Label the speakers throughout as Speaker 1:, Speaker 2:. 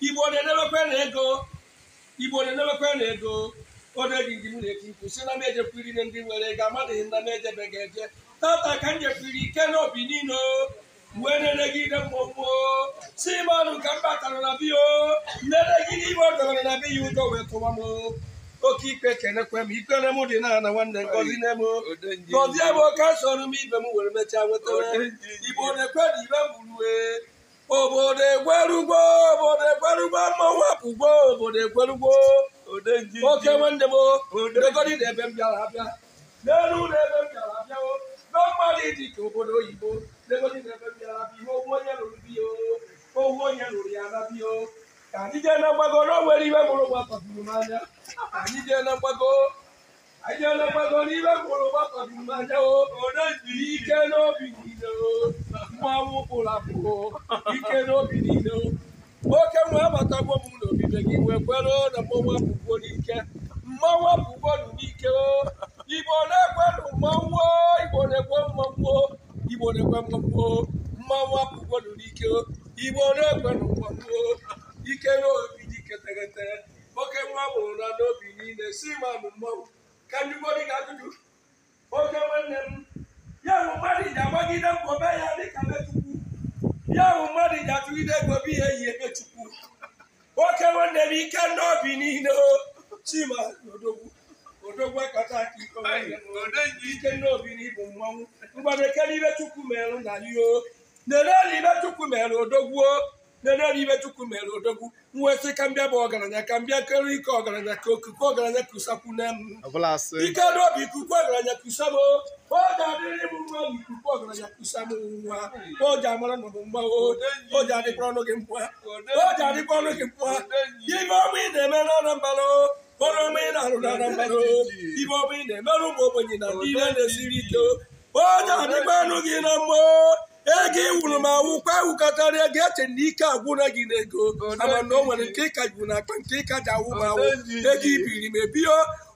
Speaker 1: igbo na-edebekwe na ego igbo na-edebekwe na ego oge ndị m na-eti mkpu si na m ejekwiri na ndị nwere ego amadịghị na m ejebeghị eje tata ka m jekwiri ike n'obi niile mgbe na-elegide mmụọ si m ọnụ ka m batara na biyo na-elegide igbe o dowere na biya udo wee tụwa m oke ikpe kenekwe m ikpere m dị na na nwanne ngozi nne m gozie m oke soro m ibe m were mechaa nwetara igbo na-ekwe na ibe m gburu e. obodo egwerugo obodo kwarugbo ma wepụgbo obodo ekwerugbo oke nwe ndị bo degodi na ebe m bịara abịa n'elu ụlọ ebe m bịara abịawo na mmadụ dị ka obodo oyibo degodi na ebe m bịara abịa ihe owu onye lụrụ bi owu onye lụrụ ya na bi ka anyị jee na mgbago na onwere ibe mụrụ gbakọtụrụ m anya ka anyị jee na mgbago anyị jee na mgbago na ibe mụrụ gbakọtụrụ m anya o ike n'obi niile o mmanwụ kpụrụ akpụ ike n'obi niile o nwoke nwe abatagwo m n'obibe gị wee kwere na mmanwụ apụgo n'ike mmanwụ apụgo n'ike igbo na-ekwe mmanwụ igbo na-ekwe mmanwụ igbo na-ekwe mmanwụ mmanwụ apụgo n'ike igbo na-ekwe mmanwụ ike na obi dị ketegete nwoke nwa mụrụ na n'obi niile si manụ mmanwụ ka njikọrị ga-ajụjụ oke nwanne m ya bụ mmadụ ji agbagide mkpọbe ya dịka metụkwu ya bụ mmadụ datu gị to bụ ihe yi emechukwu nwoke nwanne m ike n'obi niile chima odogwu odogwu akata aka ike n'obi n'ịbụ mmanwụ mgbadekere ibe chukwu merụ to yo nenelu ibe chukwu merụ odogwu nenelu ibe chukwu merụ I nwesị ka mbịa bụ ọgaranya ka mbịa kere ike ọgaranya ka okuku ọgaranya kusakwune m ike n'obi kuku ọgaranya kusamo ọ ga-adịrị m mmadụ ikuku ọgaranya kwụsa m nwa o ji amara nọdụ mgba o ji adịkwa ọnụ gị mkpụa o ji adịkwa ọnụ gị mkpụa ibe ọma ị na-eme n'Anambra ọrụ ọma ị na-arụ n'Anambra ibe ọma ị na-emere ụmụ ogbenye na ndị ihe na-esiri ike o ji adịkwa ọnụ gị na mmụọ ego iwuru m awụ kwa awụkọtara ego eche na ike agwụna gị n'ego ama na o nwere nke ịka jụ n'akpa nke ịka ji awụ m awụ ego ibiri m ebio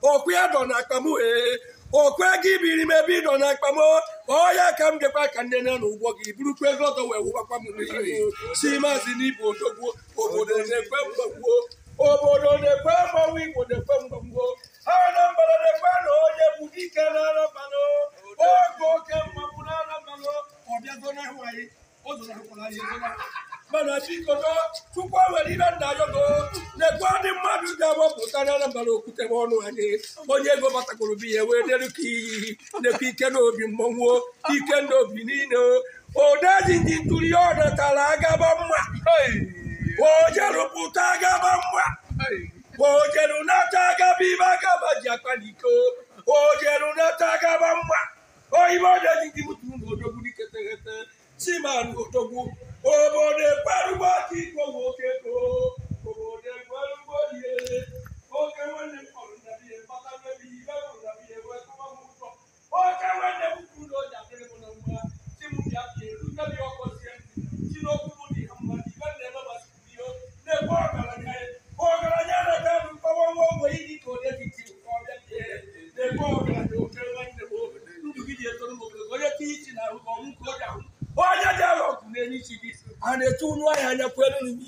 Speaker 1: okwu ya dọ n'akpa m okwe gị biri mebi ebe ịnọ na akpa m ọya ka m gekwa ka ndị na ụgwọ gị burukwa ego ọtọ wee wụbakwa m n'ihi si maazị n'ibụ odogwu obodo na-ekwe mgbagbuo obodo na-ekwe mgbanwe igbo na-ekwe mgbagbuo anambra na-ekwe na onye bụ dike na anammanụ oge oke mmanwụ na anammanụ ọbịago na ahụ anyị ọ zụrụ akwụkwọ na ahịa mana si koto tukwa weli na ndajo go ne kwadi madu jabo kutana na mbalo kute wono ane onye go bata kulubi ewe ne luki ne pike no bi mmonwo pike no bi nino odaji ndituri ona talaga bamwa ojaru putaga bamwa ojaru nataga bibaga bajakwa niko ojaru nataga bamwa oyibo odaji ndimutu ngodogu dikete kete simanu odogu obodo ekperugbo ka igbo nwoke go obodo ekperugbo lie oke nwanne m kpọrọ nna ihe mkpata mmebi ihe bụ nna ihe wetụwa m ụtọ oke nwanne m kwuru na ụja dịrị m na mgba chi m bịa bịa erute bịa ọkpọzie chi n'okwu m dị ha mma ibe m na-emebasịpụ ihe na-ekwe ọgaranya ọgaranya na-ebe m mkpọwa nwa ogbe iji ka onye dị ka ọ bịa bịa na-ekwe ọgaranya oke nwanne m ndụ gị m ogologo onye tinye ichi na and the two no I had a problem.